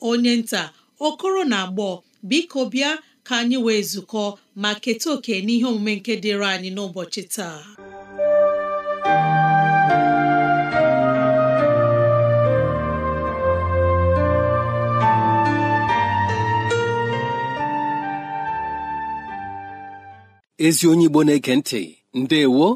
onye nta okoro na agbọ biko bịa ka anyị wee zukọ ma keta oke n'ihe omume nke dịịrị anyị n'ụbọchị taa ezi onye igbo na-ege ntị ndewo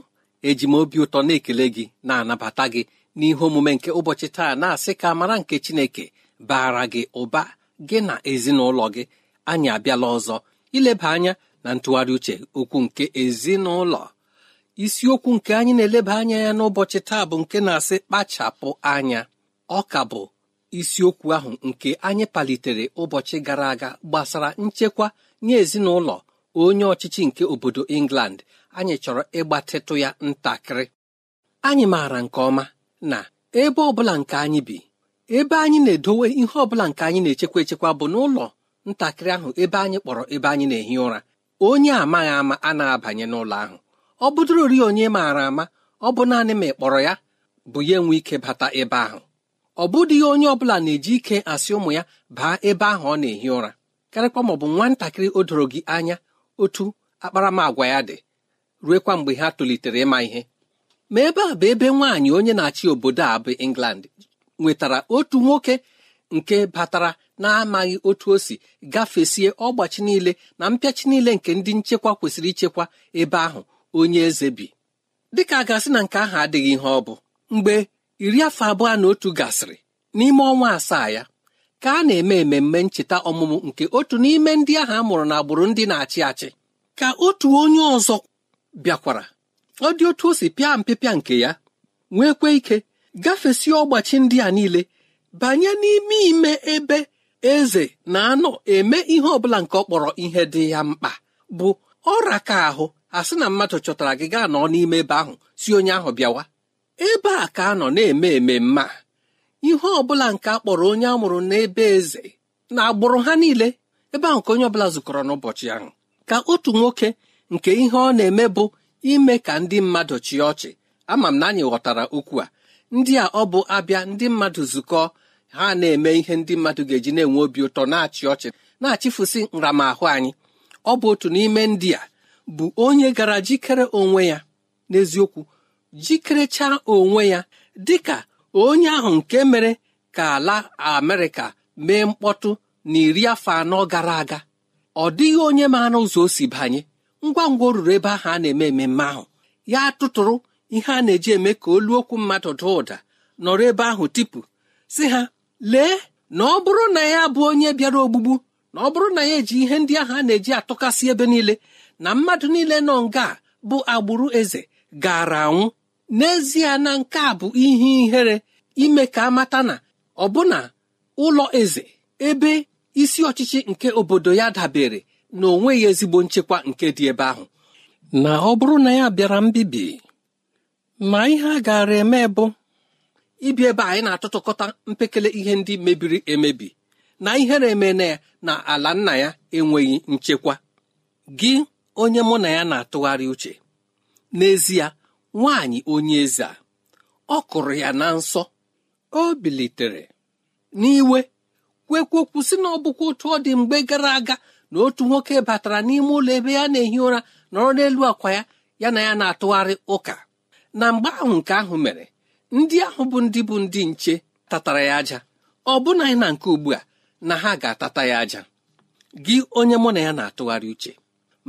eji m obi ụtọ na-ekele gị na-anabata gị n'ihe omume nke ụbọchị taa na-asị ka mara nke chineke baara gị ụba gị na ezinụlọ gị anyị abịala ọzọ ileba anya na ntụgharị uche okwu nke ezinụlọ isiokwu nke anyị na-eleba anya ya n'ụbọchị taa bụ nke na-asị kpachapụ anya ọ ka bụ isiokwu ahụ nke anyị palitere ụbọchị gara aga gbasara nchekwa nye ezinụlọ onye ọchịchị nke obodo England anyị chọrọ ịgbatịtụ ya ntakịrị anyị maara nke ọma na ebe ọ bụla nke anyị bi ebe anyị na-edowe ihe ọbụla nke anyị na-echekwa echekwa bụ n'ụlọ ntakịrị ahụ ebe anyị kpọrọ ebe anyị na-ehi ụra onye amaghị ama a na-abanye n'ụlọ ahụ ọ bụdụrori onye maara ama ọ bụ naanị ma ị kpọrọ ya bụ ya enwe ike bata ebe ahụ ọ bụdịghị onye ọ bụla na-eji ike asị ụmụ ya baa ebe ahụ ọ na-ehi ụra karịkwa ma ọ bụ nwatakịrị o doro gị anya otu akparamagwa ya dị ruekwa mgbe ha tolitere ịma ihe ma ebe a bụ ebe nwaanyị onye na-achị obodo a bụ England nwetara otu nwoke nke batara na-amaghị otu o si gafesie ọgbachi niile na mpịachi niile nke ndị nchekwa kwesịrị ichekwa ebe ahụ onye eze bi dịka a gasị na nke ahụ adịghị ihe ọ bụ mgbe iri afọ abụọ na otu gasịrị n'ime ọnwa asaa ya ka a na-eme ememme ncheta ọmụmụ nke otu n'ime ndị ahụ a mụrụ n'agbụrụ ndị na-achị achị ka otu onye ọzọ bịakwara ọ dị otu o si pịa mpịpịa nke ya nwekwe ike gafesi ọgbachi ndị a niile banye n'ime ime ebe eze na-anọ eme ihe ọbụla nke ọ kpọrọ ihe dị ya mkpa bụ ọra ka ahụ a sị na mmadụ chọtara gị gaa nọ n'ime ebe ahụ si onye ahụ bịawa ebe a ka a nọ na-eme ememme mma ihe ọbụla nke a kpọrọ onye a mụrụ n'ebe eze na agbụrụ ha niile ebe ahụ ka onye ọbụla zụkọrọ n'ụbọchị ahụ ka otu nwoke nke ihe ọ na-eme bụ ime ka ndị mmadụ chịa ọchị ama m na anyị ghọtara okwu a ndị a ọ bụ abịa ndị mmadụ zukọ ha na-eme ihe ndị mmadụ ga-eji na-enwe obi ụtọ na-achị ọchị na-achịfụsị nramahụ anyị ọ bụ otu n'ime ndị a bụ onye gara jikere onwe ya n'eziokwu jikerechaa onwe ya dị ka onye ahụ nke mere ka ala Amerịka mee mkpọtụ na iri afọ anọ gara aga ọ dịghị onye maara ụzọ o si banye ngwa ngwa o ruru ebe ahụ a na-eme ememme ahụ ya tụtụrụ ihe a na-eji eme ka olu okwu mmadụ daa ụda nọrọ ebe ahụ tipu si ha lee na ọ bụrụ na ya bụ onye bịara ogbugbu na ọ bụrụ na ya eji ihe ndị ahụ a na-eji atụkasị ebe niile na mmadụ niile nọ nga bụ agbụrụ eze gara anwụ n'ezie na nke a bụ ihe ihere ime ka amata na ọbụna ụlọ eze ebe isi ọchịchị nke obodo ya dabere na onweghị ezigbo nchekwa nke dị ebe ahụ na ọ bụrụ na ya bịara mbibi ma ihe a gaara eme bụ ibi ebe anyị na atụtụkọta mpekele ihe ndị mebiri emebi na ihere eme na ya na ala nna ya enweghị nchekwa gị onye mụ na ya na-atụgharị uche n'ezie nwaanyị onye eze a ọ kụrụ ya na nsọ o bilitere n'iwe kwekwe kwụsị na ọ otu ọ dị mgbe gara aga na otu nwoke batara n'ime ụlọ ebe ya na-ehi ụra nọrọ n'elu akwa ya ya na ya na-atụgharị ụka na mgbe ahụ nke ahụ mere ndị ahụ bụ ndị bụ ndị nche tatara ya aja ọ bụna na nke ugbu a na ha ga-atata ya aja gị onye mụ na ya na-atụgharị uche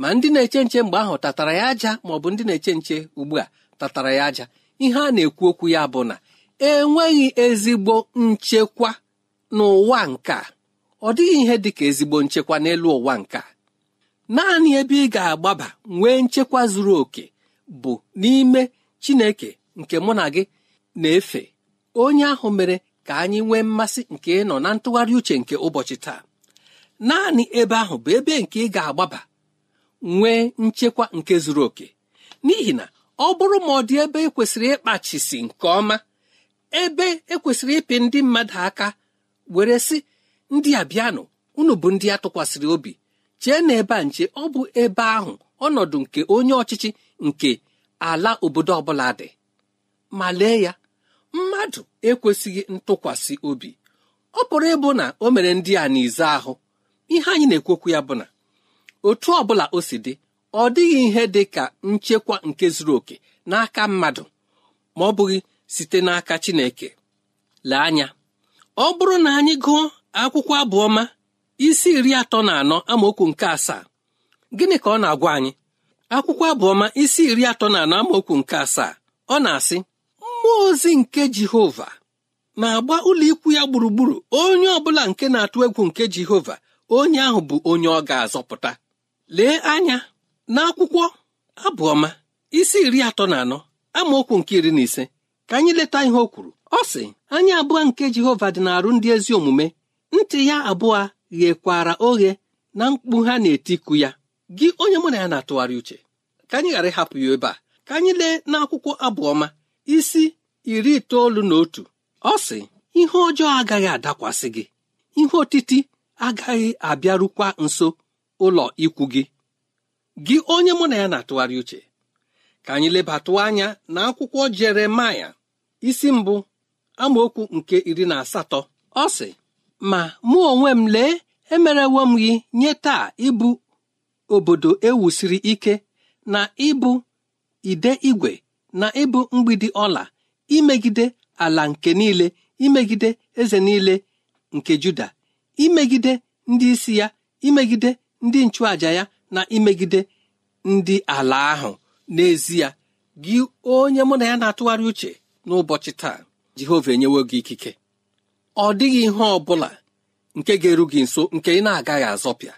ma ndị na-eche nche mgbe ahụ tatara ya aja ma ọ bụ ndị na-eche nche ugbu a tatara ya aja ihe a na-ekwu okwu ya bụ na enweghị ezigbo nchekwa n'ụwa nke a ọ dịghị ihe dị ka ezigbo nchekwa n'elu ụwa nke a naanị ebe ị ga-agbaba nwee nchekwa zuru oke bụ n'ime chineke nke mụ na gị na-efe onye ahụ mere ka anyị nwee mmasị nke ịnọ na ntụgharị uche nke ụbọchị taa naanị ebe ahụ bụ ebe nke ị ga-agbaba nwee nchekwa nke zuru oke n'ihi na ọ bụrụ ma ọ dị ebe ekwesịrị ịkpachisi nke ọma ebe ekwesịrị ịpị ndị mmadụ aka were sị ndị a bịanụ unu bụ ndị a tụkwasịrị obi chee na ebe a nche ọ bụ ebe ahụ ọnọdụ nke onye ọchịchị nke ala obodo ọbụla dị ma lee ya mmadụ ekwesịghị ntụkwasị obi ọ bụrụ ịbụ na o mere ndị a n'ize ahụ ihe anyị na-ekwekwu ya bụ na otu ọbụla o si dị ọ dịghị ihe dị ka nchekwa nke zuru oke n'aka mmadụ ma ọ bụghị site n'aka Chineke lee anya ọ bụrụ na anyị gụọ akwụkwọ abụọma isi iri atọ na anọ amaokwu nke asaa gịnị ka ọ na-agwa anyị akwụkwọ abụọma isi iri atọ na anọ amaokwu nke asaa ọ na-asị mmụọ ozi nke jehova na-agba ụlọikwu ya gburugburu onye ọbụla nke na-atụ egwu nke jehova onye ahụ bụ onye ọ ga-azọpụta lee anya n'akwụkwọ abụọma isi iri atọ na anọ amaokwu nke iri na ise ka anyị leta ihe o kwuru ọ sị anya abụọ nke jehova dị na-arụ ndị ezi omume ntị ya abụọ ghekwara oghe na mkpu ha na-etiku ya gị onye mụ na ya na-atụgharị uche ka anyị ghara ịhapụ ya ebe a ka anyị lee n'akwụkwọ abụọma isi iri itoolu na otu ọ sị ihe ọjọọ agaghị adakwasị gị ihe otiti agaghị abịarukwa nso ụlọ ikwu gị gị onye mụ na ya na-atụgharị uche ka anyị lebatụ anya na akwụkwọ jeremaya isi mbụ amaokwu nke iri na asatọ ọ sị ma mụ onwe m lee emerewo m gị nye taa ịbụ obodo ewusiri ike na ịbụ ide igwe na ịbụ mgbidi ọla imegide ala nke niile imegide eze niile nke Juda imegide ndị isi ya imegide ndị nchụaja ya na imegide ndị ala ahụ n'ezie gị onye mụ na ya na-atụgharị uche n'ụbọchị taa Jehova enyewo gị ikike ọ dịghị ihe ọ bụla nke ga-eru gị nso nke ị na-agaghị azọpịa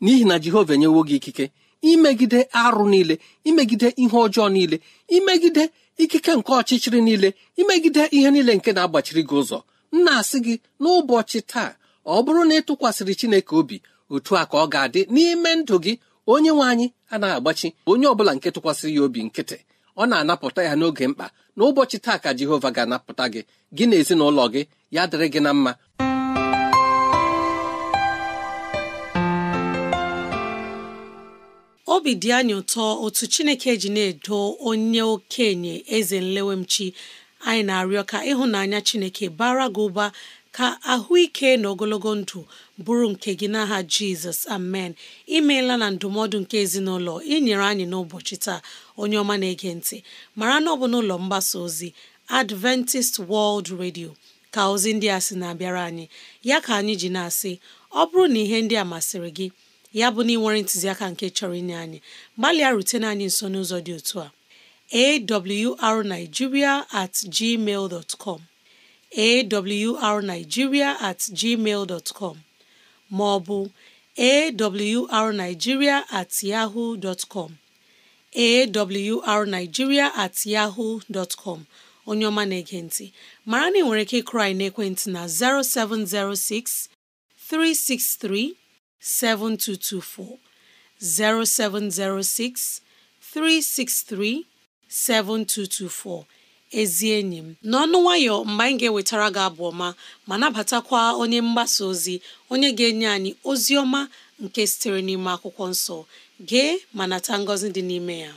n'ihi na jehova enyewo gị ikike imegide arụ niile imegide ihe ọjọọ niile imegide ikike nke ọchịchịrị niile imegide ihe niile nke na-agbachiri gị ụzọ m na-asị gị n'ụbọchị taa ọ bụrụ na ị tụkwasịrị chineke obi otu a ka ọ ga-adị n'ime ndụ gị onye nwe anyị anaghị agbachi onye ọbụla nke tụkwasịrị ya obi nkịtị ọ na-anapụta ya n'oge mkpa n'ụbọchị taa ka jehova ga-anapụta gị gị na ezinụlọ gị ya dịrị gị na mma obi dị anyị ụtọ otu Chineke ji na-edo onye okenye eze nlewemchi anyị na-arịọ ka ịhụnanya Chineke bara gị ụba ka ahụike na ogologo ndụ bụrụ nke gị n'aha Jizọs amen imeela na ndụmọdụ nke ezinụlọ inyere anyị n'ụbọchị taa onye ọma na-ege ntị mara na ọ bụ n'ụlọ mgbasa ozi Adventist World Radio ka ozi ndị a sị na-abịara anyị ya ka anyị ji na-asị ọ bụrụ na ihe ndị a masịrị gị ya bụ na ị nwere ntụziaka nke chọrọ inye anyị gbalịa na anyị nso n'ụzọ dị otu a awrnigeria at gmail com awrnigeria at gmail dot com ma ọ bụ awrnigeria at yahoo com awrnigeria at yahoo com onye ọma na-ege ntị mara na ị nwere ike ịkụrụ na ekwentị na 0706 363 7224 0706 363 7224 ezi enyi m n'ọnụ nwayọ mgbe anyị ga-ewetara gị abụ ọma ma nabatakwa onye mgbasa ozi onye ga-enye anyị ozi ọma nke sitere n'ime akwụkwọ nsọ gee ma nata ngọzi dị n'ime ya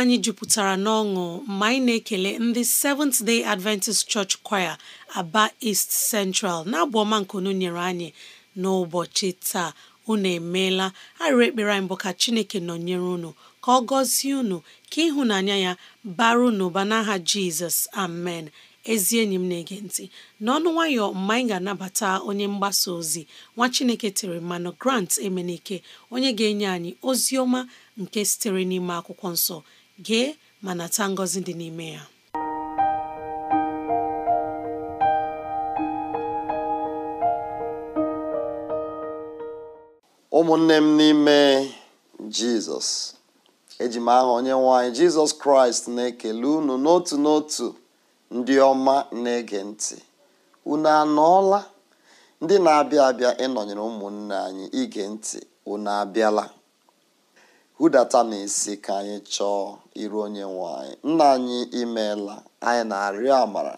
anyị jupụtara n'ọṅụ mgbe anyị na-ekele ndị Seventh Day Adventist Church Choir Aba East Central na-abụ ọma nyere anyị n'ụbọchị taa unu emeela arịrị ekpere anyị bụ ka Chineke nọnyere unu ka ọ gọzie unu ka ịhụnanya ya bara unu ụba n'aha Jizọs amen ezi enyi m na-ege ntị n'ọnụ nwayọ mgbe anyị ga-anabata onye mgbasa ozi nwa Chineke tere mmanụ Grant Emenike onye ga-enye anyị ozi ọma nke sitere n'ime akwụkwọ nsọ gee ma nata tangozi dị n'ime ya ụmụnne m n'ime jizọs eji m aha onye nwanyị jizọs kraịst na-ekele unu n'otu n'otu ndị ọma na-ege ntị unu anọọla ndị na-abịa abịa ịnọnyere ụmụnne anyị ige ntị unu abịala na n'isi ka anyị chọọ iru onye nwe anyị nna anyị imeela anyị na-arịọ amara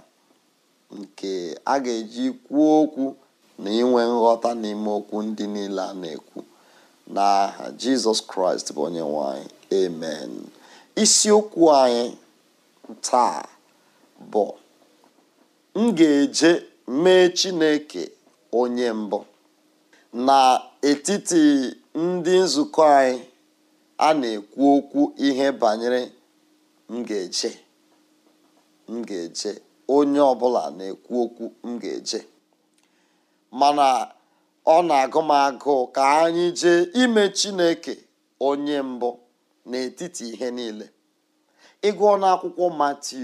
nke a ga-eji kwuo okwu na inwe nghọta n'ime okwu ndị niile a na-ekwu n'aha jizọs kraịst bụ onye nwanyị anyị amen isiokwu anyị taa bụ m ga-eje mee chineke onye mbụ na etiti ndị nzukọ anyị a na-ekwu okwu ihe banyere m ga-eje m ga-eje onye ọbụla na-ekwu okwu m ga-eje mana ọ na-agụ m agụụ ka anyị jee ime chineke onye mbụ n'etiti ihe niile ịgụọ n'akwụkwọ mati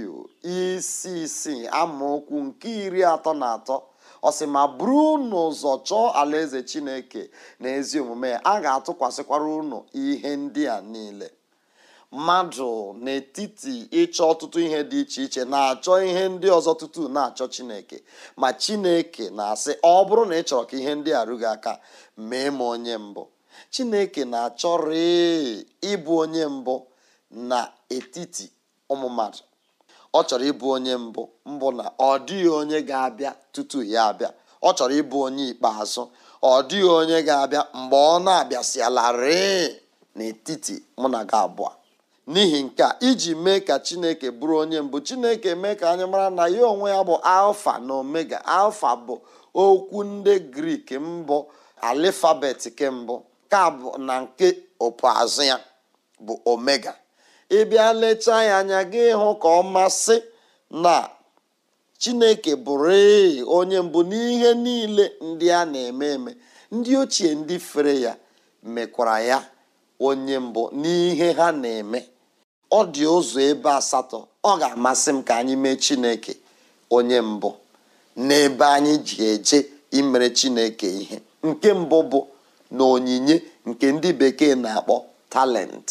isi isii amaokwu nke iri atọ na atọ ọ sị ma buru unu ụzọ chọọ alaeze chineke na omume a ga-atụkwasịkwara unu ihe ndị a niile mmadụ n'etiti ịchọ ọtụtụ ihe dị iche iche na-achọ ihe ndị ọzọ tutu na-achọ chineke ma chineke na-asị ọ bụrụ na ị chọrọ ka ihe ndị arụghị aka mee m onye mbụ chineke na-achọrị ịbụ onye mbụ n'etiti ụmụ mmadụ ọ chọrọ ịbụ onye mbụ mbụ na ọ dịghị onye ga-abịa tutu ya abịa ọ chọrọ ịbụ onye ikpeazụ ọ dịghị onye ga-abịa mgbe ọ na-abịasịalarị n'etiti mụ na gị abụọ n'ihi nke a iji mee ka chineke bụrụ onye mbụ chineke mee ka anyị mara na ya onwe ya bụ alfa na omega alfa bụ okwu ndị grik mbụ alifabet kembụ ka bụ na nke opuazụ ya bụ omega ị bịa lechaa ya anya gị hụ ka ọ masị na chineke bụrụ onye mbụ n'ihe niile ndị a na-eme eme ndị ochie ndị fere ya mekwara ya onye mbụ n'ihe ha na-eme ọ dị ụzọ ebe asatọ ọ ga-amasị m ka anyị mee chineke onye mbụ n'ebe anyị ji eje imere chineke ihe nke mbụ bụ na onyinye nke ndị bekee na-akpọ talent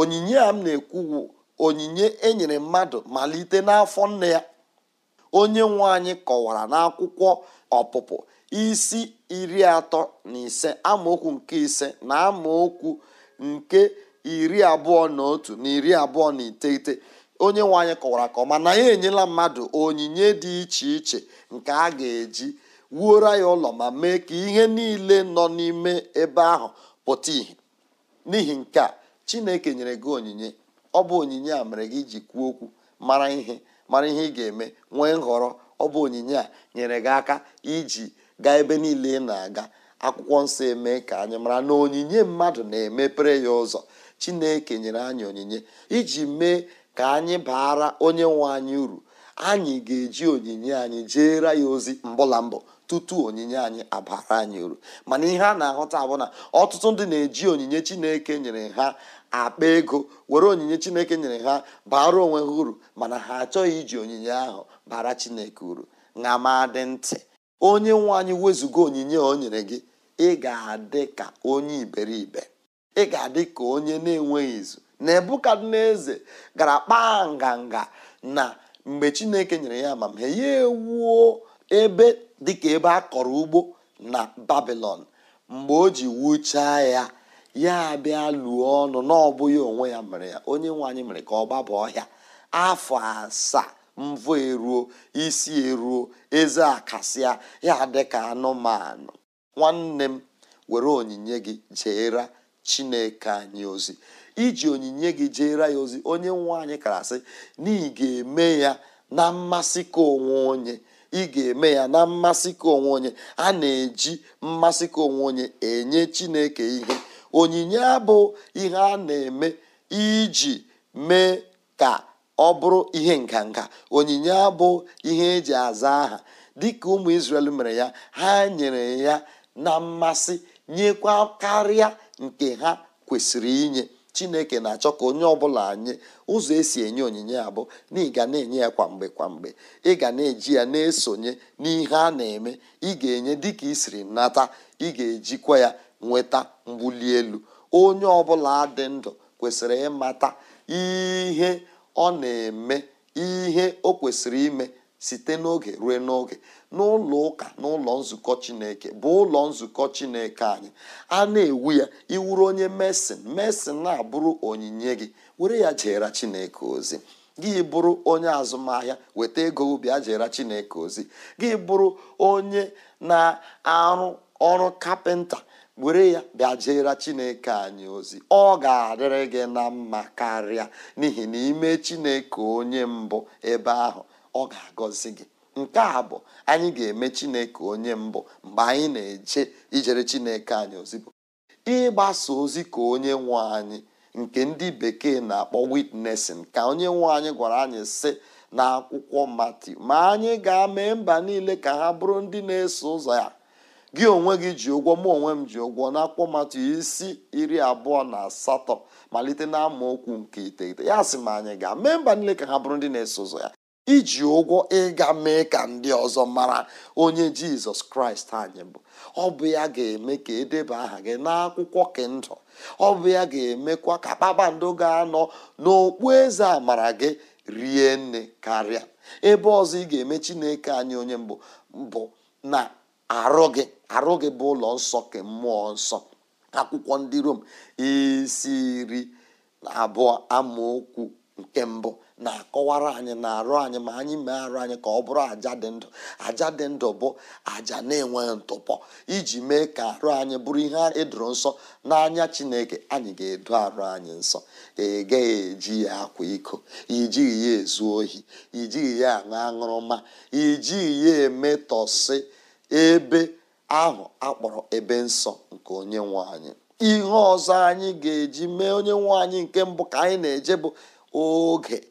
onyinye a m na-ekwuwu onyinye enyere mmadụ malite n'afọ nne ya onye nwe kọwara n'akwụkwọ ọpụpụ isi iri atọ na ise amaokwu nke ise na amaokwu nke iri abụọ na otu na iri abụọ na iteghete onye nwe kọwara ka ọma na ya enyela mmadụ onyinye dị iche iche nke a ga-eji wuoro ya ụlọ ma mee ka ihe niile nọ n'ime ebe ahụ pụta ìhè n'ihi nke a chineke nyere gị onyinye ọ bụ onyinye a mere gị iji kwuo okwu mara ihe mara ihe ị ga-eme nwee nhọrọ ọ bụ onyinye a nyere gị aka iji gaa ebe niile ị na-aga akwụkwọ nsọ eme ka anyị mara na onyinye mmadụ na-emepere ya ụzọ chineke nyere anyị onyinye iji mee ka anyị baara onye nwe anyị uru anyị ga-eji onyinye anyị jeere ya ozi mbụla mbụ tutu onyinye anyị abara anyị uru mana ihe a na-ahụta bụ na ọtụtụ ndị na-eji onyinye chineke nyere ha akpa ego were onyinye chineke nyere ha bara onwe ha uru mana ha achọghị iji onyinye ahụ bara chineke uru na ma dị ntị onye nwe anyị wezụga onyinye o nyere gị ị ga-adị ka onye iberibe ị ga-adị ka onye na-enweghị izu na Nebukadneza gara kpaa nganga na mgbe chineke nyere ya amamihe ya ewuo ebe dịka ebe a kọrọ ugbo na babilon mgbe o ji wuchaa ya ya abịa lụọ ọnụ n'ọbụghị onwe ya mere ya onye nwe anyị mere ka ọ gbaba ọhịa afọ asaa mvọ eruo isi eruo eze akasịa ya dịka anụmanụ nwanne m were onyinye gị jeera chineke anyị ozi iji onyinye gị jeera ya ozi onye nwe anyị kara sị na ị ga-eme ya na mmasị ka onwe onye ị ga-eme ya na mmasị ka onwe onye a na-eji mmasị ka onwe onye enye chineke ihe onyinye abụ ihe a na-eme iji mee ka ọ bụrụ ihe nganga onyinye abụ ihe eji aza aha dịka ụmụ isrel mere ya ha nyere ya na mmasị nyekwa karịa nke ha kwesịrị inye chineke na-achọ ka onye ọbụla anyị ụzọ esi enye onyinye ya bụ na ị na-enye ya kwamgbe kwamgbe ị ga na-eji ya na-esonye n'ihe a na-eme ị ga-enye dịka ị siri nata ị ga-ejikwa ya nweta mgbuli elu onye ọbụla dị ndụ kwesịrị ịmata ihe ọ na-eme ihe o kwesịrị ime site n'oge ruo n'oge n'ụlọ ụka n'ụlọ nzukọ chineke bụ ụlọ nzukọ chineke anyị a na-ewu ya iwuru onye mesin mesin na-abụrụ onyinye gị were ya jeere chineke ozi gị bụrụ onye azụmahịa weta ego ubi ajera chineke ozi gị bụrụ onye na-arụ ọrụ kapịnta were ya bịa jeere chineke anyị ozi ọ ga-adịrị gị na mma karịa n'ihi na ime chineke onye mbụ ebe ahụ ọ ga-agọzi gị nke a bụ anyị ga-eme chineke onye mbụ mgbe anyị na-eje ijere chineke anyị ozibụ ịgbasa ozi ka onye nwe anyị nke ndị bekee na-akpọ witnesin ka onye nwe anyị gwara anyị sị akwụkwọ mati ma anyị ga-amee mba niile ka ha bụrụ ndị na-eso ụzọ ya gị onwe gị ji ụgwọ mụ onwe m ji ụgwọ n'akwụkwọ mati isi iri abụọ na asatọ malite na amaokwu nke iteghete ya sị ma anyị ga mee mba niile ka ha bụrụ ndị na-eso ụzọ ya iji ụgwọ ịga mee ka ndị ọzọ mara onye jizọs kraịst anyị bụ ọ bụ ya ga-eme ka edeba aha gị n'akwụkwọ kendụ ọ bụ ya ga-emekwa ka kpakpando ga-anọ n'okpu eze amara gị rie nne karịa ebe ọzọ ị ga-eme chineke anyị onye mbụ bụ na arụ gị arụ gị bụ ụlọ nsọ ke mmụọ nsọ akwụkwọ ndị rom isi abụọ amaokwu nke mbụ na-akọwara anyị na-arụ anyị ma anyị mee arụ anyị ka ọ bụrụ aja dị ndụ aja dị ndụ bụ aja na-enweghị ntụpọ iji mee ka arụ anyị bụrụ ihe edoro nsọ n'anya chineke anyị ga edu arụ anyị nsọ ịgaghị e eji ya akwa iko ijighị e ya ezu ohi ijighị e ya aṅụ aṅụrụma ijighị ya emetọsị ebe ahụ akpọrọ ebe nsọ nke onye nwe anyị ihe ọzọ anyị ga-eji mee onye nwe anyị nke mbụ ka anyị na-eje bụ oge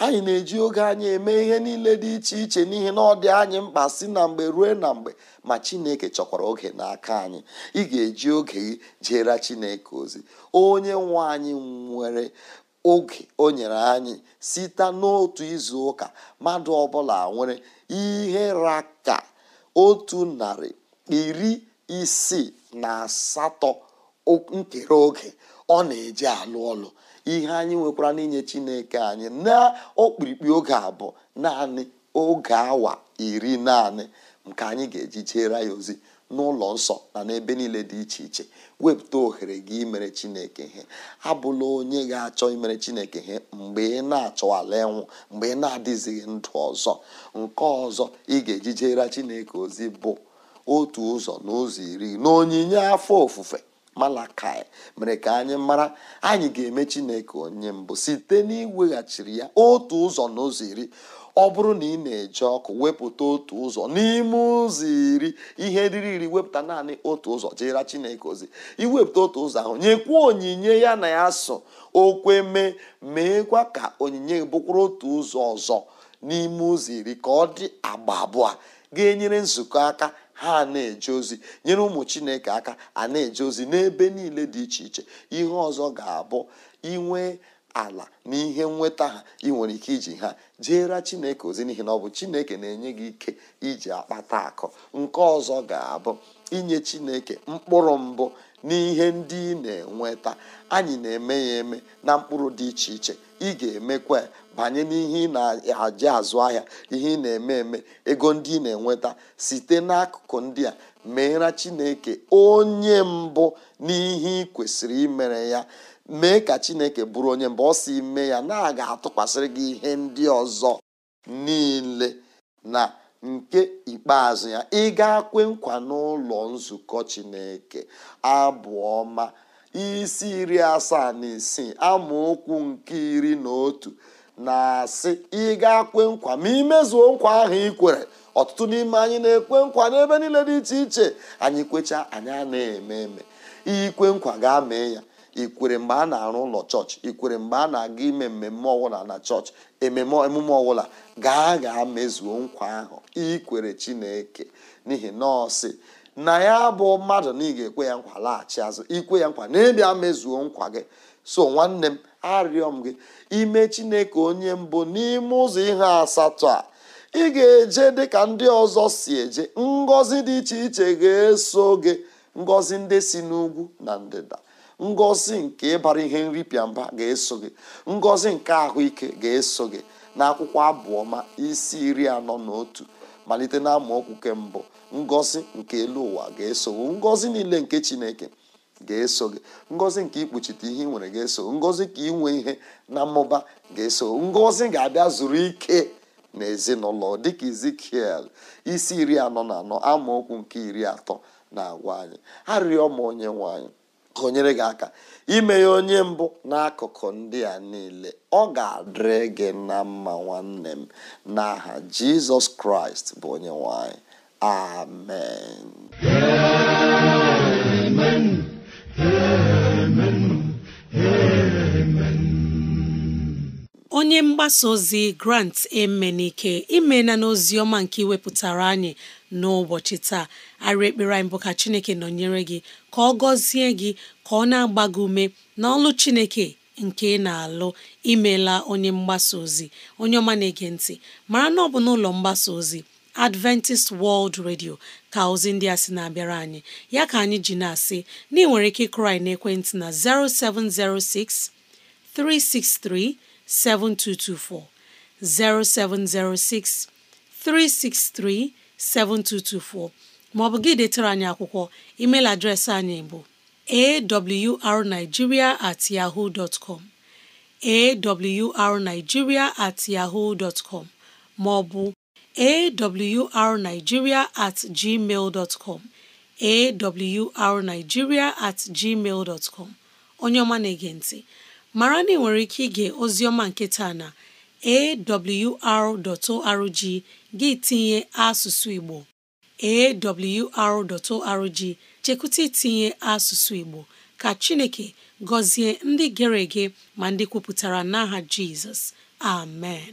anyị na-eji oge anyị eme ihe niile dị iche iche n'ihi na ọ dị anyị mkpa si na mgbe ruo na mgbe ma chineke chọkwara oge n'aka anyị ị ga-eji oge gị jere chineke ozi onye nwe anyị nwere oge o nyere anyị site n'otu izu ụka mmadụ ọbụla nwere ihe raka otu narị iri isii na asatọ nkere oge ọ na-eji alụ ọlụ ihe anyị nwekwara n'inye chineke anyị na okpirikpi oge abụ naanị oge awa iri naanị nke anyị ga-eji jeere ya ozi n'ụlọ nsọ na n'ebe niile dị iche iche wepụta ohere gị imere chineke ihe abụla onye ga-achọ imere chineke ihe mgbe ị na-achọwala ịnwụ mgbe ị na-adịzighị ndụ ọzọ nke ọzọ ị ga-eji chineke ozi bụ otu ụzọ na ụzọ iri na onyinye afọ ofufe malakai mere ka anyị mara anyị ga-eme chineke onye mbụ site n'iweghachiri ya otu ụzọ na ụzọ iri ọ bụrụ na ị na-eje ọkụ wepụta otu ụzọ n'ime ụzọ iri ihe riri iri wepụta naanị otu ụzọ jeera chineke ozi iwepụta otu ụzọ ahụ nyekwuo onyinye ya na ya so okwe mee meekwa ka onyinye bụkwara otu ụzọ ọzọ n'ime ụzọ iri ka ọ dị agba abụọ ga-enyere nzukọ aka ha na-eje ozi nyere ụmụ chineke aka a na-eje ozi n'ebe niile dị iche iche ihe ọzọ ga-abụ inwe ala na ihe nweta ha ị nwere ike iji ha jeere chineke ozi n'ihi na ọ bụ chineke na-enye gị ike iji akpata akụ nke ọzọ ga-abụ inye chineke mkpụrụ mbụ n'ihe ndị ị na-enweta anyị na-eme ya eme na mkpụrụ dị iche iche ị ga-emekwa banye n'ihe ị na-aji azụ ahịa ihe ị na-eme eme ego ndị ị na-enweta site n'akụkụ ndị a meera chineke onye mbụ n'ihe ị kwesịrị imere ya mee ka chineke bụrụ onye mbụ ọ si ime ya na-aga atụkwasịrị gị ihe ndị ọzọ niile na nke ikpeazụ ya ị ga-akwe nkwa n'ụlọ nzukọ chineke abụ isi iri asaa na isii amaokwu nke iri na otu na-asị ị ga-kwe nkwa ma imezuo nkwa ahụ ị kwere ọtụtụ n'ime anyị na-ekwe nkwa n'ebe niile dị iche iche anyị kwechaa anyị a na-eme eme ikwe nkwa ga-amee ya ikwere mgbe a na-arụ ụlọ chọọchị ikwere mgbe a na-aga ime mmemme ọwụla na chọọchị ememe emume ọbụla gaa gaa mezuo nkwa ahụ ikwere chineke n'ihi nọọsị na ya bụ mmadụ na ị ga-ekwe ya nkwa laghachi azụ ikwe ya nkwa na ịbịa mezuo nkwa gị so nwanne m arịọ m gị ime chineke onye mbụ n'ime ụzọ ihe asatọ a ị ga-eje dịka ndị ọzọ si eje ngọzi dị iche iche ga-eso gị ngọzi ndị si n'ugwu na ndịda ngọzi nke ịbara ihe nripịa mba ga-eso gị ngọzi nke ahụike ga-eso gị na akwụkwọ abụọma isi iri anọ na otu malite na amaokwu mbụ ngọzi nke elu ụwa ga-eso ngọzi niile nke chineke ga-eso gị ngozi nke ikpuchite ihe ị nwere ga-eso ngozi ka inwe ihe na mmụba ga-eso ngozi ga-abịa zuru ike na ezinụlọ dịka izikiel isi iri anọ na anọ amaokwu nke iri atọ na-agwa anyị arịọ m onye nwanyị anyị gị aka ime ya onye mbụ n'akụkụ ndị a niile ọ ga-adịrị gị na mma nwanne m n'aha jizọs kraịst bụ onye nwanyị amen onye mgbasa ozi grant emenike imena n'ozi ọma nke iwepụtara anyị n'ụbọchị taa arị ekpere anyị bụ ka chineke nọnyere gị ka ọ gọzie gị ka ọ na-agba gị ume ọlụ chineke nke ị na-alụ imela onye mgbasa ozi onye ọma na-ege ntị mara na ọ bụ n'ụlọ mgbasa ozi Adventist World Radio ka ozi ndị a sị na-abịara anyị ya ka anyị ji na-asị na ị nwere ike ịkụrụ anyị ekwentị na 0706 363 7224 0706 363 7224 maọbụ gị detara anyị akwụkwọ email adreesị anyị bụ awrnigeria at yahoo dot com at yahoo com maọbụ awrnigeria at gmail com at gmail dot onye ọma na-ege ntị mara na ị nwere ike ige ozi ọma nke na awr.org gị tinye asụsụ Igbo awr.org chekwụta itinye asụsụ Igbo ka Chineke gọzie ndị gere ege ma ndị kwupụtara n'aha Jizọs amen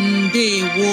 ndewo